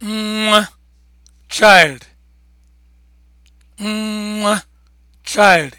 nwa child child